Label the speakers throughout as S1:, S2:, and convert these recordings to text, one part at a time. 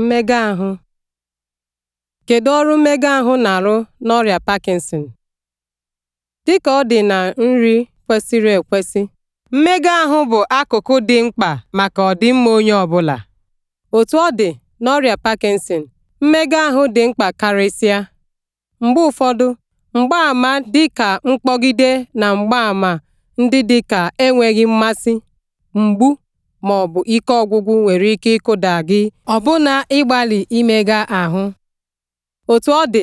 S1: mmega ahụ kedu ọrụ mmega ahụ na-arụ n'ọrịa Parkinson dịka ọ dị na nri kwesịrị ekwesị mmega ahụ bụ akụkụ dị mkpa maka ọdịmma onye ọ bụla. otu ọ dị n'ọrịa Parkinson mmega ahụ dị mkpa karịsịa mgbe ụfọdụ mgbaàmà dịka mkpọgide na mgbaàmà ndị dịka enweghị mmasị mgbu ma ọ bụ ike ọgwụgwụ nwere ike ịkụda gị ọbụna ịgbalị imega ahụ otú ọ dị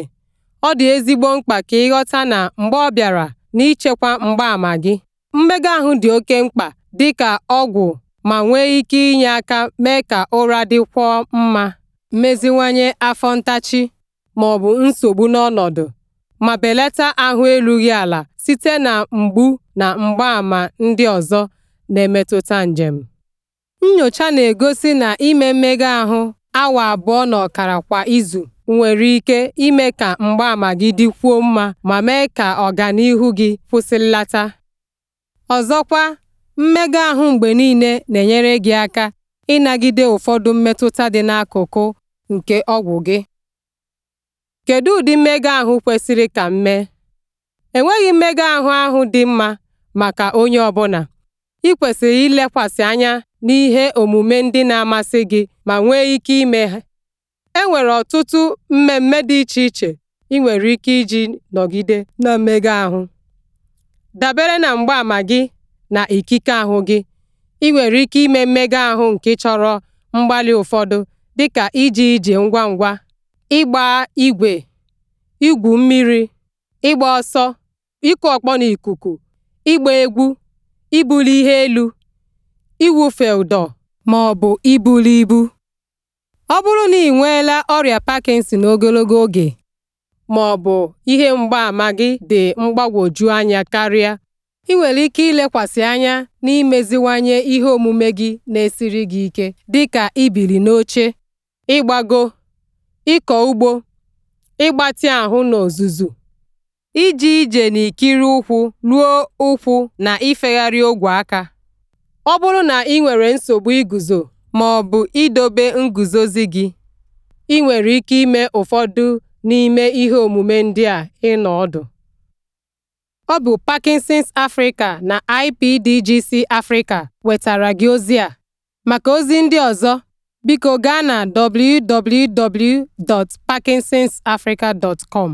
S1: ọ dị ezigbo mkpa ka ị ghọta na mgbe ọ bịara n'ichekwa mgbaàmà gị mmega ahụ dị oke mkpa dị ka ọgwụ ma nwee ike inye aka mee ka ụra dịkwuo mma meziwanye afọ ntachi ma ọ bụ nsogbu n'ọnọdụ ma belata ahụ erughị ala site na mgbu na mgbaàmà ndị ọzọ na-emetụta njem Nnyocha na-egosi na ime mmega ahụ awa abụọ na ọkara kwa izu nwere ike ime ka mgbaama gị dịkwuo mma ma mee ka ọganihu gị kwụsịlata. Ọzọkwa, mmega ahụ mgbe niile na-enyere gị aka ịnagide ụfọdụ mmetụta dị n'akụkụ nke ọgwụ gị. Kedu ụdị mmega ahụ kwesịrị ka m mee? Enweghị mmega ahụ ahụ dị mma maka onye ọbụla. ị kwesịrị ilekwasị anya n'ihe omume ndị na-amasị gị ma nwee ike ime ha e nwere ọtụtụ mmemme dị iche iche ị nwere ike iji nọgide na mmega ahụ dabere na mgbaama gị na ikike ahụ gị ị nwere ike ime mmega ahụ nke chọrọ mgbalị ụfọdụ dịka iji ije ngwa ngwa ịgba igwe igwu mmiri ịgba ọsọ ịkụ ọkpọ n'ikuku ịgba egwu ibuli ihe elu iwufe ụdọ ma ọ bụ ibuli ibu ọ bụrụ na ị nweela ọrịa Parkinson ogologo oge ma ọ bụ ihe mgbaàmà gị dị mgbagwoju anya karịa ị nwere ike ilekwasị anya na n'imeziwanye ihe omume gị na-esiri gị ike dịka ibili n'oche ịgbago ịkọ ugbo ịgbatị ahụ n'ozuzu ije na ikiri ụkwụ ruo ụkwụ na ifegharị ogwe aka Ọ bụrụ na ị nwere nsogbu iguzo ma ọ bụ idobe nguzozi gị, ị nwere ike ime ụfọdụ n'ime ihe omume ndị a ịnọ ọdụ. Ọ bụ Parkinson's Africa na IPDGC Africa wetara gị ozi a. Maka ozi ndị ọzọ, biko gaa na www.parkinsonsafrica.com.